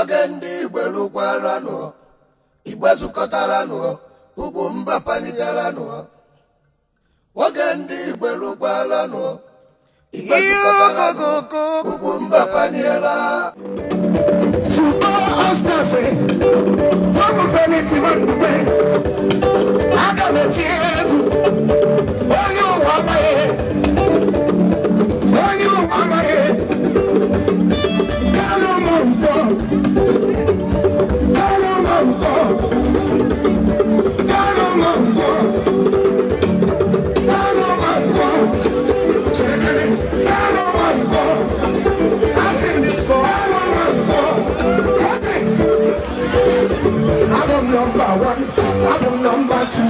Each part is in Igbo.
oge ndị igbo lụkwaranụ igbe zukọtaranụ ugwu mba panigaranụ oge ndị igbo igbe zukọtaranụ ugwu mba paniela Constance, how will Venice even be? I got a tear. I'm number two,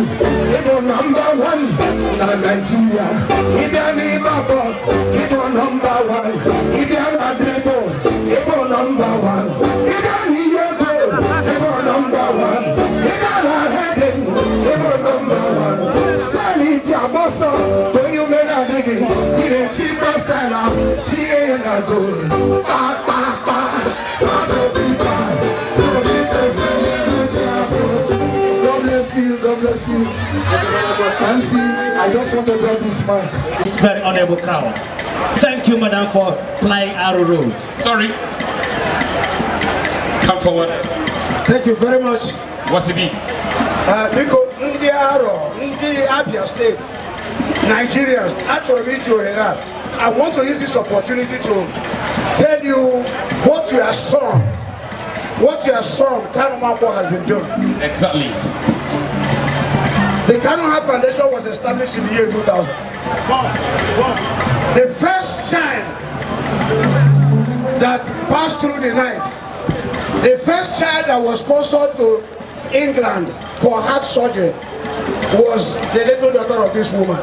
he number one. Now Nigeria, he be an Ibabok, he do number one. He an Adebo, he number one. He an Iyoto, he number one. He an Ahedin, he number one. Style is Jaboso, when you men are style, she good. Back, back. bless you. MC, I just want to drop this mic. This very honorable crowd. Thank you, madam, for playing Arrow road. Sorry. Come forward. Thank you very much. What's it be? Uh, Biko, ndị Aro, ndị Abia State, Nigerians, achọrọ m iji ohere I want to use this opportunity to tell you what your son, what your son, Kanumakwa, has been doing. Exactly. The Cannon High Foundation was established in the year 2000. The first child that passed through the knife, the first child that was sponsored to England for heart surgery was the little daughter of this woman.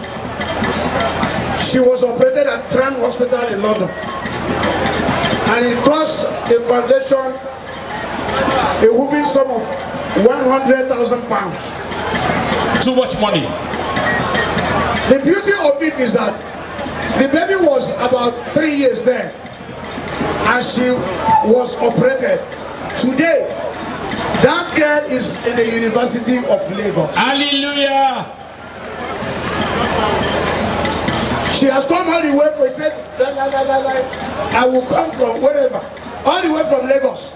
She was operated at Cran Hospital in London. And it cost the foundation a whooping sum of 100,000 pounds too much money. The beauty of it is that the baby was about three years there and she was operated. Today, that girl is in the University of Lagos. Hallelujah! She has come all the way for, He said, la, la, la, la, la. I will come from wherever, all the way from Lagos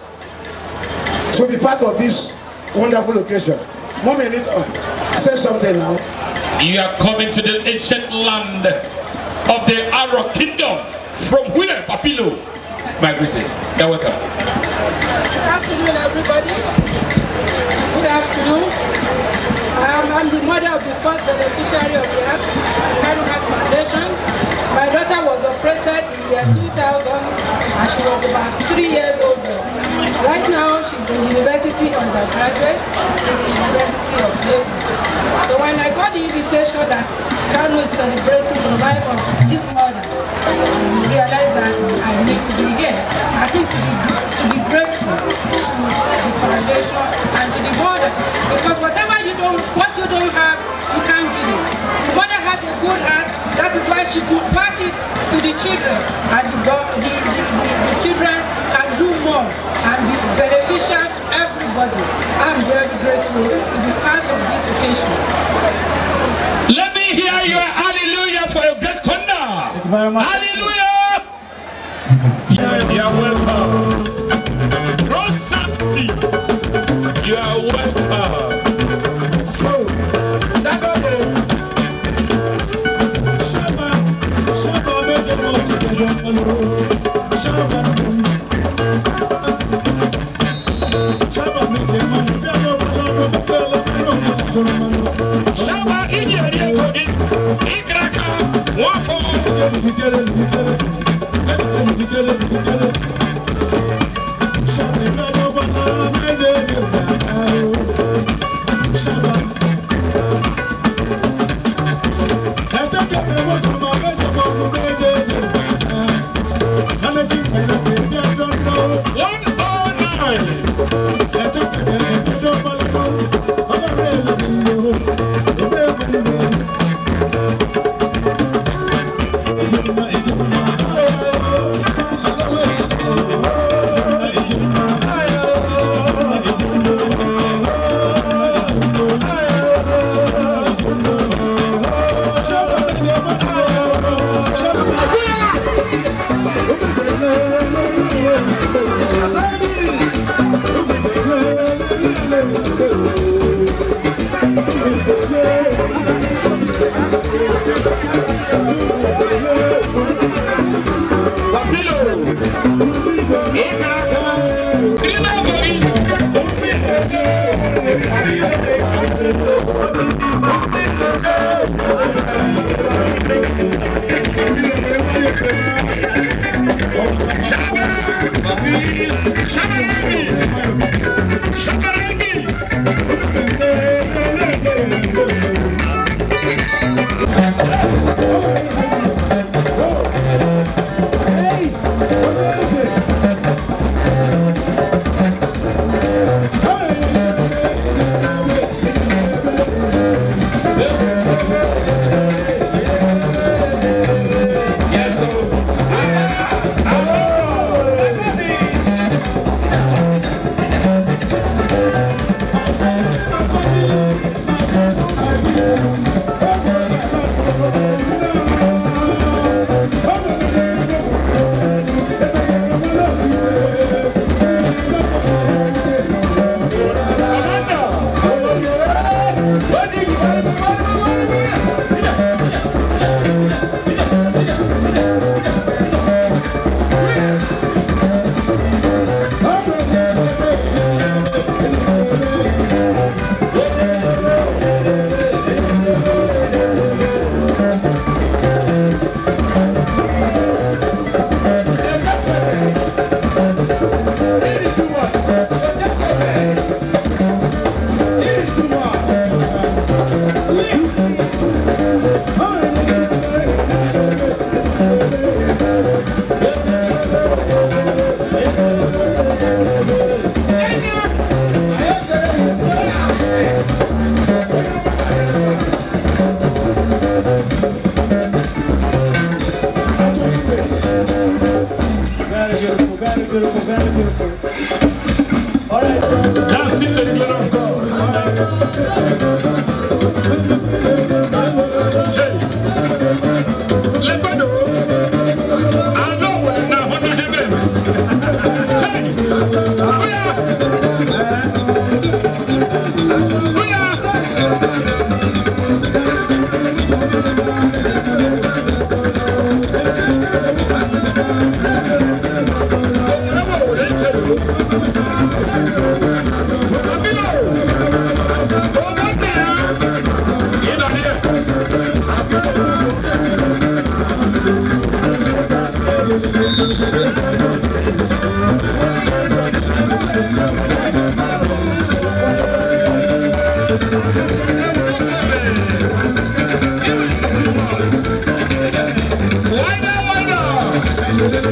to be part of this wonderful occasion. One it Oh, say something now. You are coming to the ancient land of the Arab kingdom from where, Papilo? My greeting. You're welcome. Good afternoon, everybody. Good afternoon. Um, I'm the mother of the first beneficiary of the Heart, Kano Heart Foundation. My daughter was operated in the year 2000 and she was about three years old. Right now, she's a university undergraduate in the University of Naples. So when I got the invitation that Kano is celebrating the life of his mother, I realized that I need to be here, at least to be, to be grateful to the foundation and to the mother. Because whatever you don't, what you don't have, you can't give it. The mother has a good heart, that is why she could pass it to the children. grateful to be part of this occasion. Let me hear your hallelujah for your great thunder. Hallelujah! You are welcome. jigele jigele jigele jigele jigele.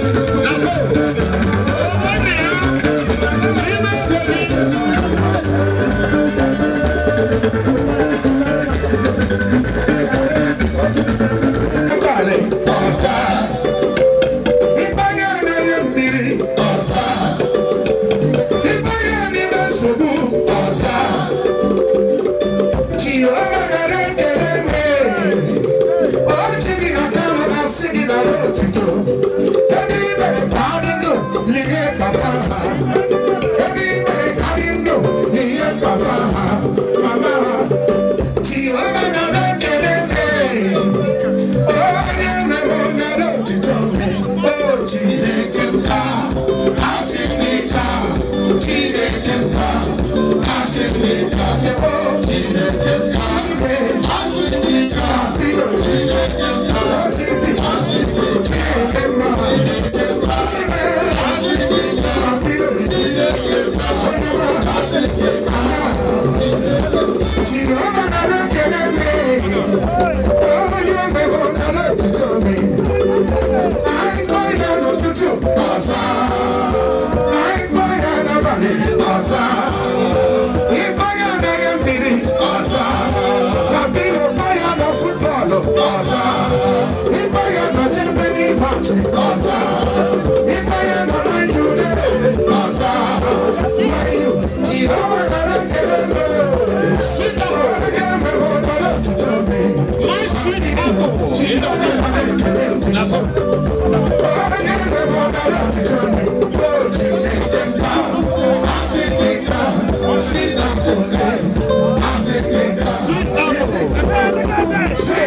Nasceu!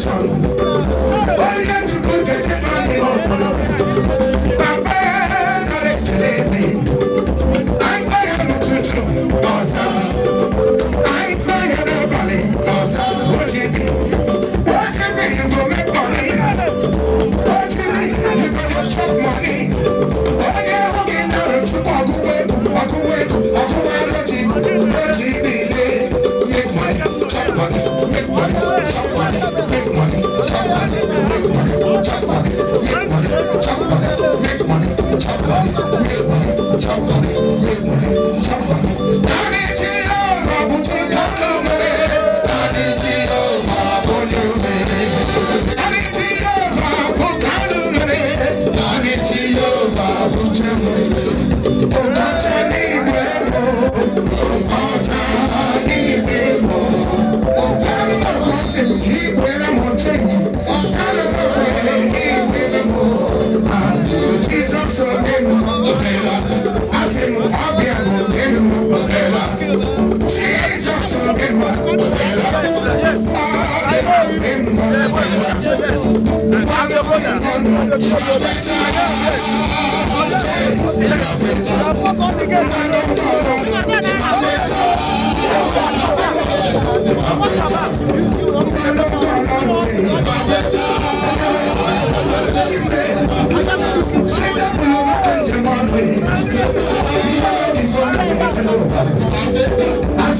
son. Sit up and jam on me.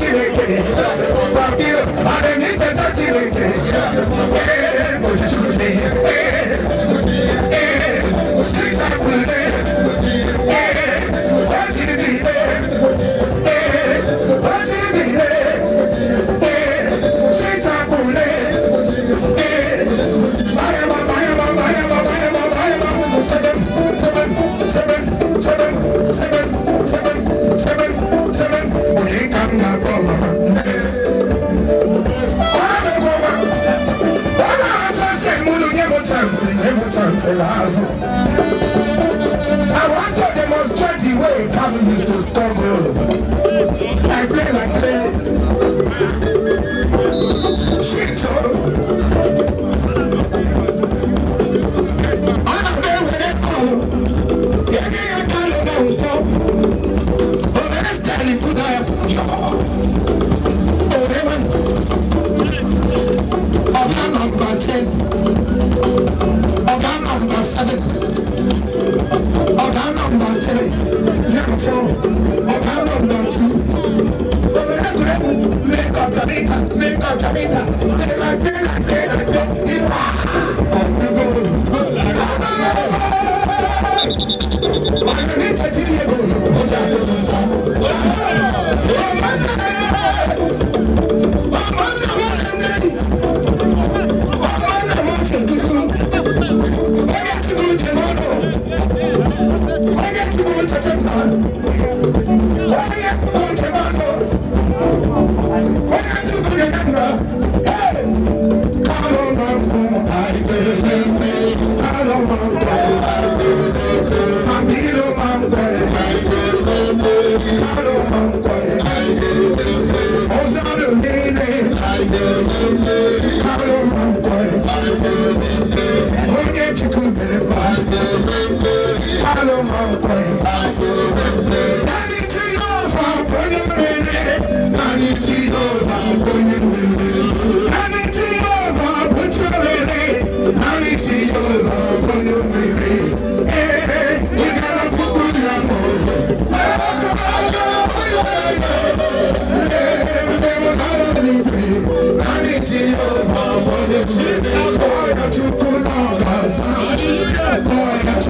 touching it. are niche it.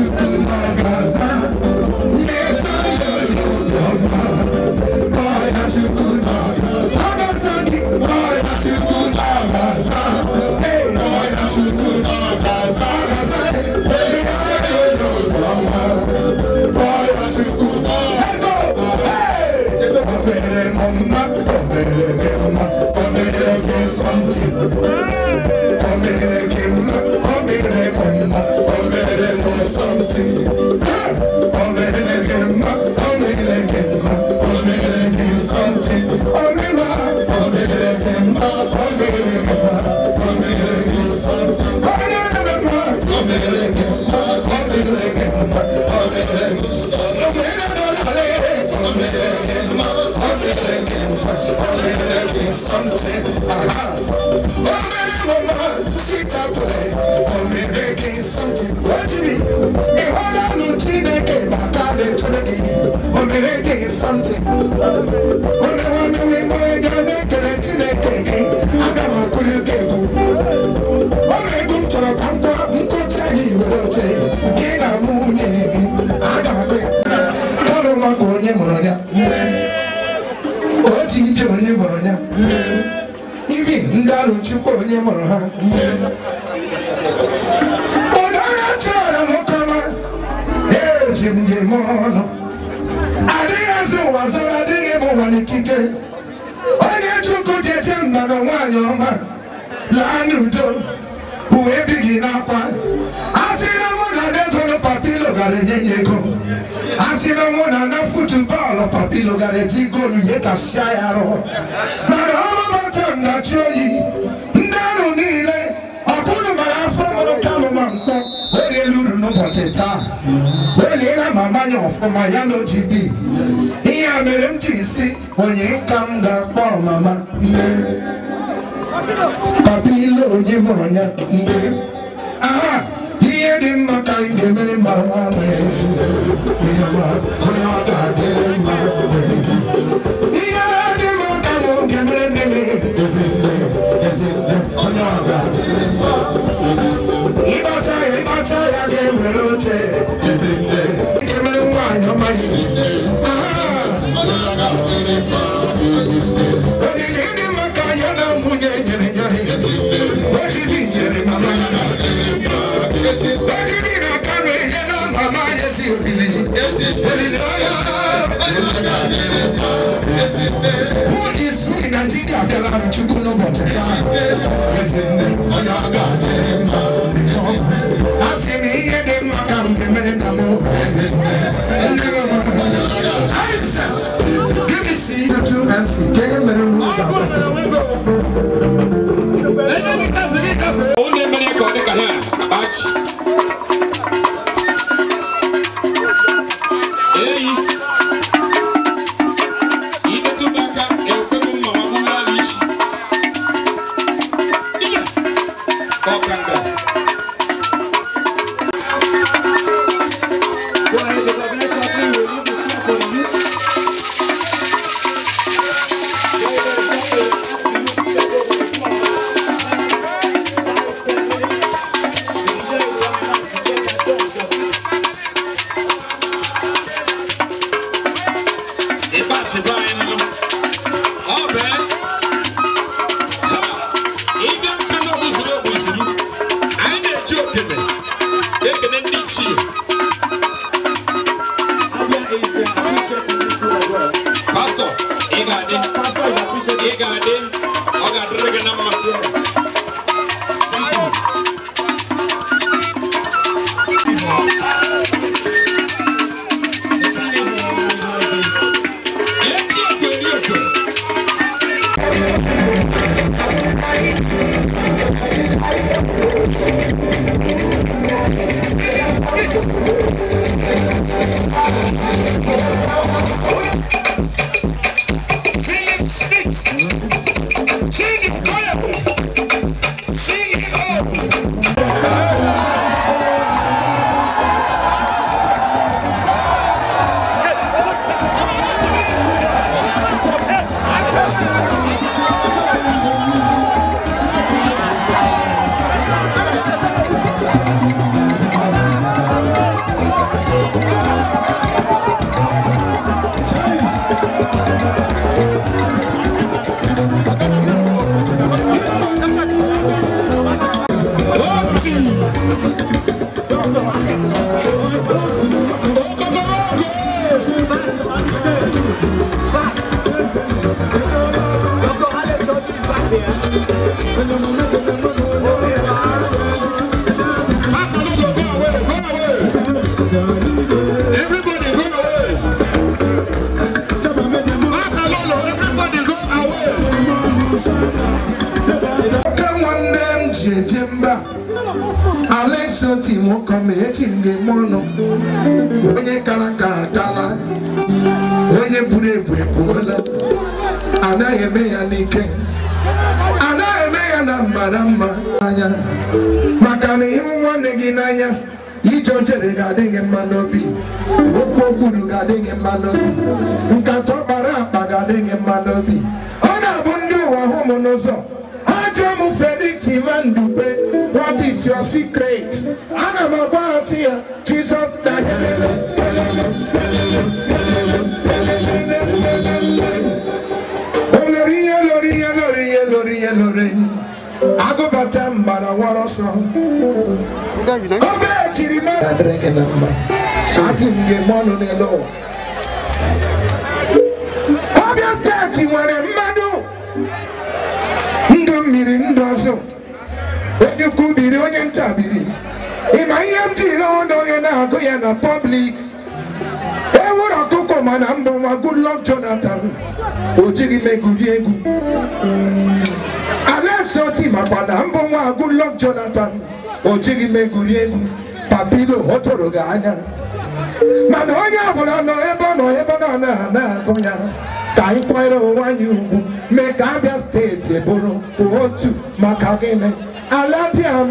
something. Come here, come, come here, come something around. Oh, man, mama, sweet apple. I'm gonna day you something. Only one we murder, they can't. I got my ilu gara eji goolu ihe kashia ya arụ mana ọmamata ndachi oyi ndị anụ niile ọbụrụ mara afọ mụrụ kalụma mkpọ o riela uru n'ụbọchị taa o liela ma manya ọfụma ya na OGB ihe a mere m ji si onye ka m ga-akpọ mama mgbe papa ile onye mụrụ ya mgbe aha ihe dị mma ka anyị ga-emere ma nwa nwee onye ọ ga-adịrị mma ịkpacha ya ga-ewere oche ike mere nwaanyị amaghị What is in Nigeria Kalari Chukuno Boteta? Is it Oyaga Asim here the Makam Menamo? Is it Answer. Give me see the two MC. Can you remember? Only many come here. Batch. isi otu ime ụkọ ma echi m ga-eme ọnụ onye kara ka akala onye buru ebu ebuola anaghị eme ya n'ike anaghị eme ya na mara mma anya maka na ịhụ nwanne gị n'anya ije ochere ga-adị gị mma n'obi okwu okwuru ga-adị gị mma n'obi nkata ọkpara akpa ga-adị gị mma n'obi ọ na-abụ ndị ụwa hụ m n'ụzọ ha m Felix Ivan is your secret. I'm agba boss here. Jesus died. helele helele helele helele olori oh, ihe lori ihe oh, lori ihe oh, lori ihe lori agụbata mbara wọrọ sọ obe ejiri na ihe m ji onye na-agụ ya na pọblik ewuru ọkụkọ mana mbụ nwa Goodluck Jonathan o jighị m egwu Alex Oti makwa na mbụ nwa Jonathan o egwu papilo ọ tụrụ gị anya mana onye ọbụla nọ ebe ọ nọ ebe ọ na-agụ ya ka anyị kwanyere ugwu mee ka Abia steeti bụrụ otu maka gịnị ala bịa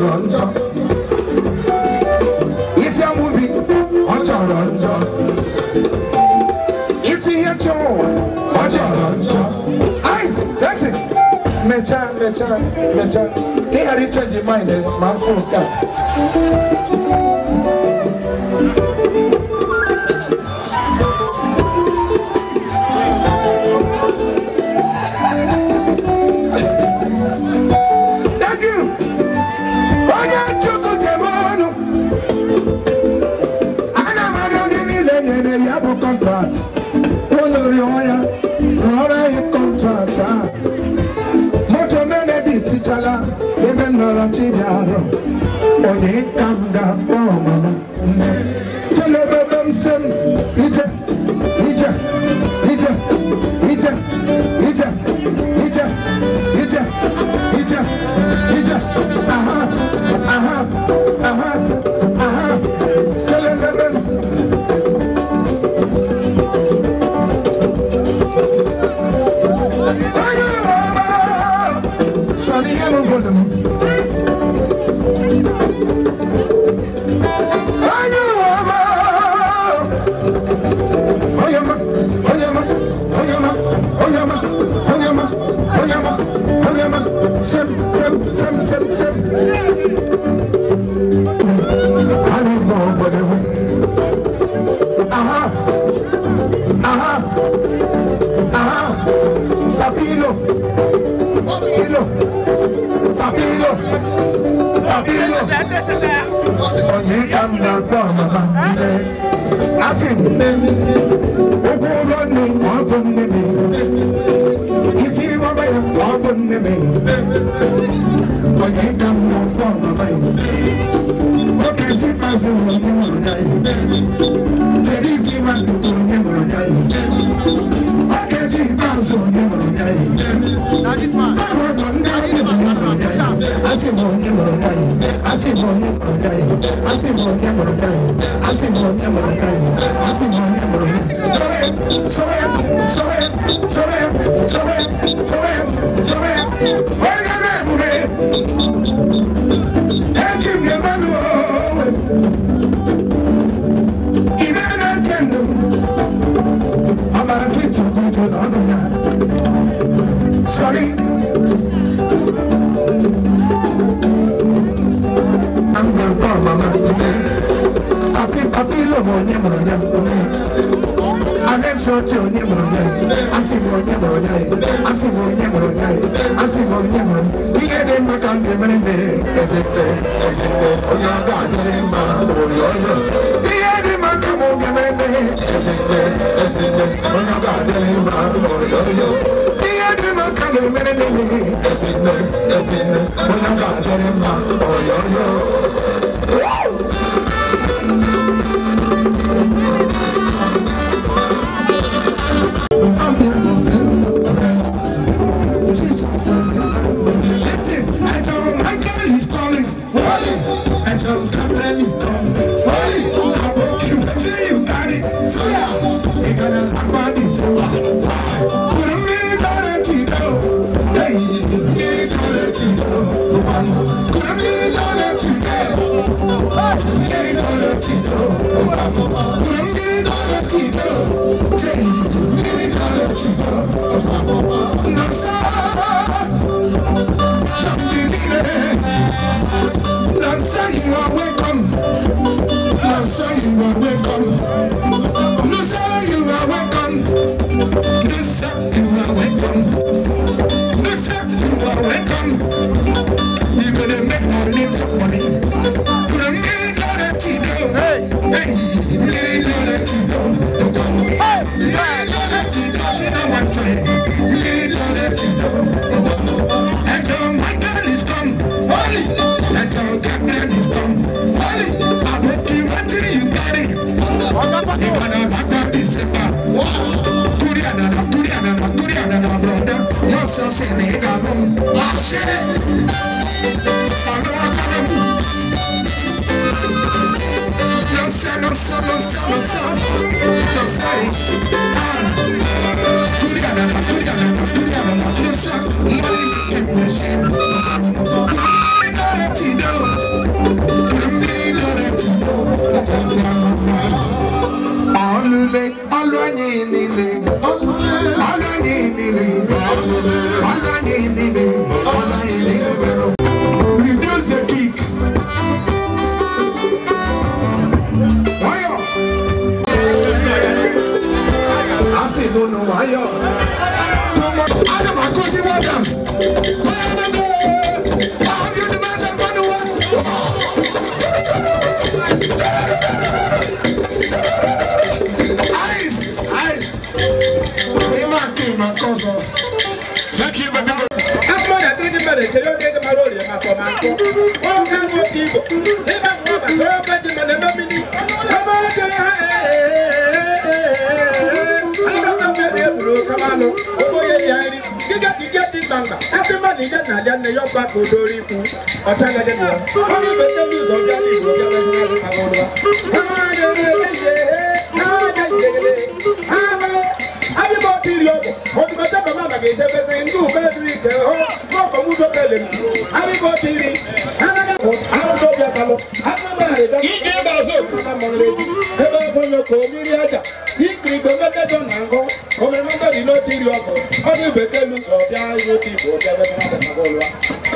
chọrọ njọ isi amuvi ọ chọrọ njọ isi ihe chọrọ ụwa ọ chọrọ njọ ice dati mechaa mechaa mechaa ka ị ghara ichenji mind ma m nke a Hallelujah. baba nne asị m nne ụkwụ ụlọ nne ọ bụ nne m isi rọba ya ọ bụ nne m onye ka m na mama ya oke isi ikpeazụ onye mụrụ ya Felix Nwandu bụ onye mụrụ ya oke isi ikpeazụ onye mụrụ ya ahụ bụ nne asị m onye mụrụ gị anyị asị m onye mụrụ gị anyị asị m onye mụrụ gị anyị asị m onye mụrụ gị anyị asị m onye mụrụ gị sọrọ ya sọrọ ya sọrọ ya sọrọ ya sọrọ ya sọrọ ya sọrọ ya onye na-ebube ọbịlụ m onye mụrụ ya anenso oche onye mụrụ ya asị m onye mụrụ ya asị m onye mụrụ ya asị m onye mụrụ ihe dị mma ka m ga-emere mbe ezete ezete onye ọga adịrị mma bụrụ ọjọọ ihe dị mma ka m ga-emere mbe ezete ezete onye ọga adịrị mma bụrụ ọjọọ ihe dị mma ka m ga-emere mbe ezete ezete onye ọga adịrị mma bụrụ ọjọọ Woo! ijana ne yọba kò dórí ikú ọ̀tá gẹ́gẹ́ bí wọn wọn bẹ tẹbi ìzọgbà ní ìlú ọjọ́ mẹ́sàn án nípa wọn lọ. káwọn gẹ́gẹ́ yẹ káwọn gẹ́gẹ́ yẹ àwọn abibọ ti lọ bọ ọdún ọjọ́ bàbá àgbàgbé ìṣẹfẹsẹ ndú bẹ́ẹ̀ dúró ìtẹ ọ gbọgbọmú dọkẹlẹ mi abibọ ti rí. igbe mekejọ na ngụ obere mekedi n'otu iri ọkụ ọ dị bekee lu sọ bịa n'otu igbo bịa besịma dị maka ụlọ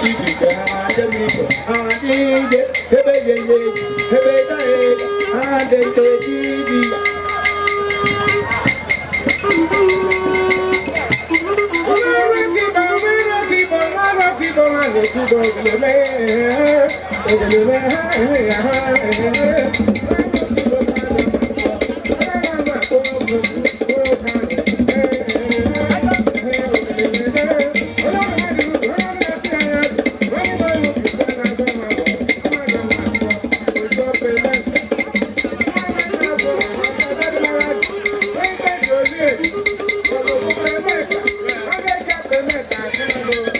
ibi igbe ha adị mmiri ha adị ije ebe ye ye ebe ta ye ha dị nte Thank you. Thank you.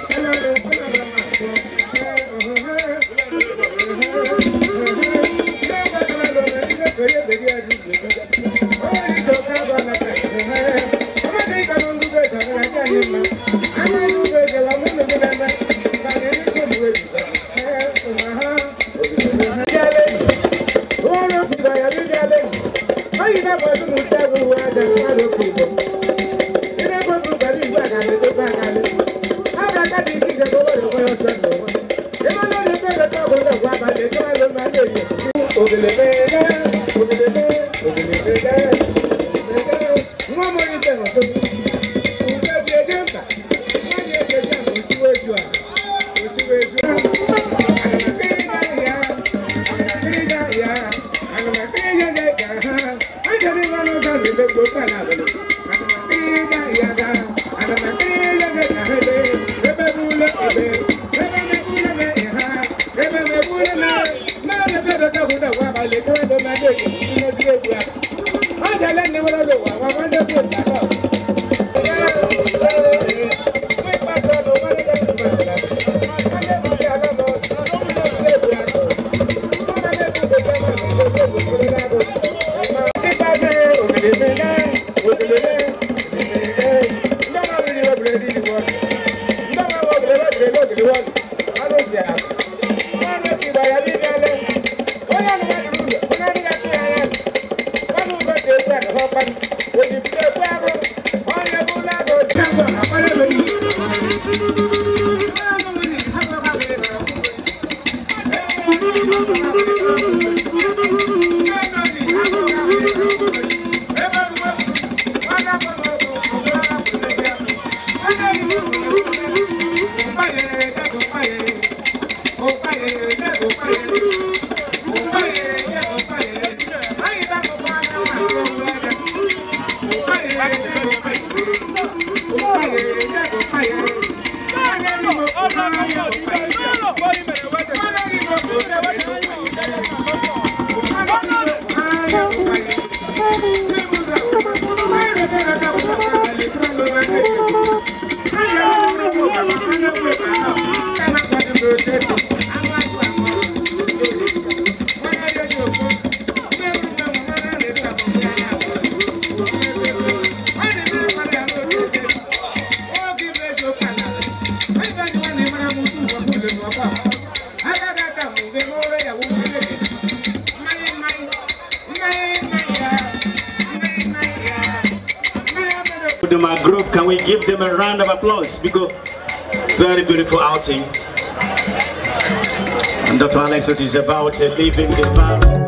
them a round of applause because very beautiful outing. And Dr. Alex is about leaving the bar.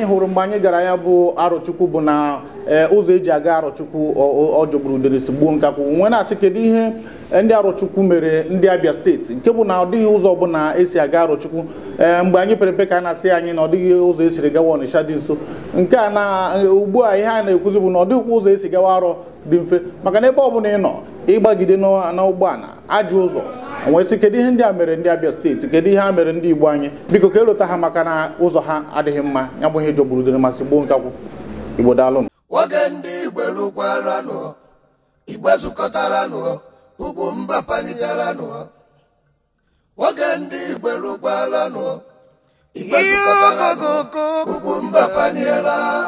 anyị hụrụ mgbe anyị gara ya bụ arọchukwu bụ na eh, ụzọ eji aga arụchukwu ọjọgburu uderesi gbuo nkakwụ nwe na-asị kedu ihe eh, ndị arọchukwu mere ndị abịa steeti nke bụ na ọ dịghị ụzọ ọbụla esi aga arọchukwu eh, mgbe anyị pere mpe ka a na-asị anyị na ọ dịghị ụzọ esiri gawa ọnịsha dị nso nke a na ugbu a ihe a na-ekwuzi bụ na ọ dịghịkwa ụzọ esi gawa arọ dị mfe maka na ebe ọbụla ị nọ ịgbagide n'ụgbọala ajọ ụzọ onwesị kedu ihe ndị a mere ndị Abia steeti kedu ihe a mere ndị Igbo anyị biko ka elota ha maka na ụzọ ha adịghị mma ya bụ ihe jọgburudere masị gboo nkakwụ Igbo daalụ nwoke ndị Igbo lụkwaranụ Igbo zukọtaranụ ugwu mba panijaranụ nwoke ndị Igbo lụkwaranụ Igbo zukọtaranụ ugwu mba paniela